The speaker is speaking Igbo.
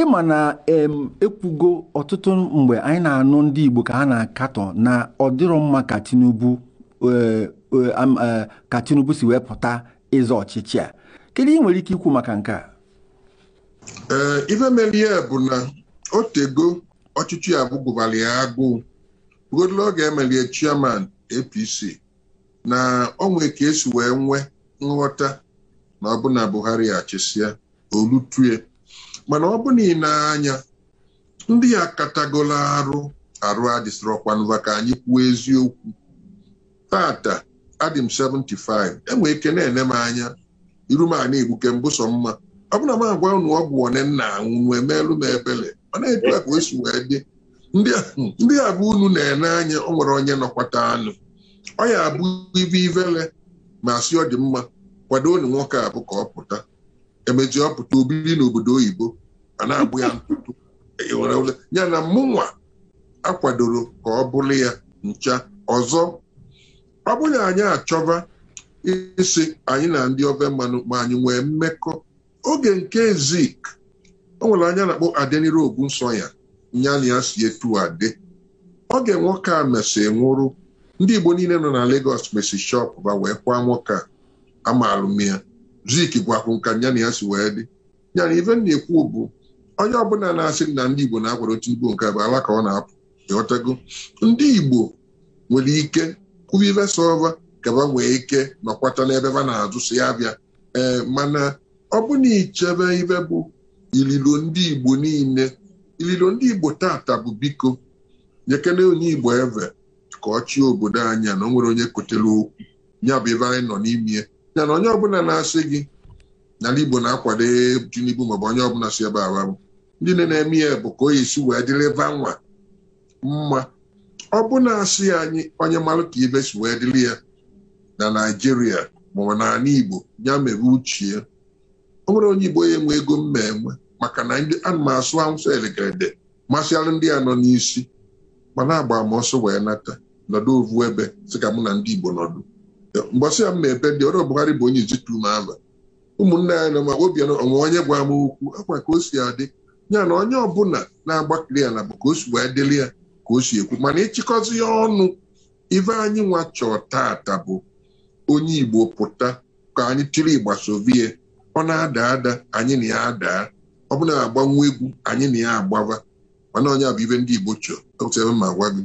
ịma na ekwugo ọtụtụ mgbe anyị na-anụ ndị Igbo ka ha na-akatọ na ọ dịrọ mma ka Tinubu e, e, e, si wee pụta ịzọ ọchịchị a kedu ị nwere ike ikwu maka nke a ife mere bụ na o tego ọchịchị ya bụgụbara ya agụụ ogodolo oge emelie chairman APC na onwe ka esi wee nwee nghọta na ọbụna Buhari achịsịa olutue mana ọ bụ na ị na-anya ndị ya katagolo arụ arụ adịsịrọkwa nva ka anyị kwuo eziokwu tata adị m 75 enwe ike na-ene m anya iru m ana egbuke mbụsọ mma ọ bụna m agwa ụnụ ọgwụ one nna anwụ wee meelu m ebele mana etu a ka o wee dị ndị bụ unu na-ene anya o nwere onye nọkwata anụ ọ ya abụ ibe ivele ma si ọ dị mma kwado unu nwoke abụ ka ọ pụta emechi ọ obiri n'obodo oyibo a na-agbụ ya ntụtụ e ya na mụnwa akwadoro ka ọ bụrụ ya ncha ọzọ ọ bụrụ na anyị achọba isi anyị na ndị ofe mmanụ ma anyị nwee mmekọ oge nke zik o nwere anya na-akpọ adenire nsọ ya na ya si etu ade oge nwoke a mesi nwụrụ ndị Igbo niile nọ na Lagos mesi shọp ba wee kwa nwoke a amaalụm ya Zik gwakwu nka ya na ya si wee dị ya na ife na-ekwu bụ onye ọbụla na-asị na ndị Igbo na-akwado otu Igbo nke bụ ala ka ọ na-apụ ịghọtago ndị Igbo nwere ike kwuba ife sova ka ba nwee ike nọkwata n'ebe ba na-azụ si ya bịa ee mana ọ bụna ichebe ife bụ ililo ndị Igbo niile ililo ndị Igbo tata bụ biko nyekene onye Igbo eve ka ọ chie obodo anya na o nwere onye kotere okwu ya bụ ife anyị nọ n'ime ya na onye ọbụla na-asị gị n'ala Igbo na-akwado Tinubu maọbụ onye ọbụla si ebe awa ndị na-eme ya bụ ka o yesi wee dịrịva nwa mma ọ bụ na-asị anyị onye mara ka ibe si wee dịrị ya na Naịjirịa maọbụ n'ala Igbo ya mere uche ya ọ nwere onye Igbo ya enwe ego mma enwe maka na ndị ana m asụ anwụsọ elegede masịalụ ndị a nọ n'isi ma na-agba m ọsọ wee nata nọdụ ovu ebe sị ka mụ na ndị Igbo nọdụ mgbasị ya m na-ebe ndị ọrụ Buhari bụ onye ijitu m ama ụmụnne anyị na ma Obianọ onye gwa m okwu akwa ka o si adị ya na onye ọbụla na-agbakiri ya na bụ ka o si wee dịrị ya ka o si ekwu mana ịchịkọzi ya ọnụ ife anyị nwa chọọ tata bụ onye Igbo pụta ka anyị tiri sovie ọ na-ada ada anyị na ya adaa ọ bụla agbanwe egwu anyị na ya agbava mana onye a bụ ibe ndị Igbo chọọ ma gwa gị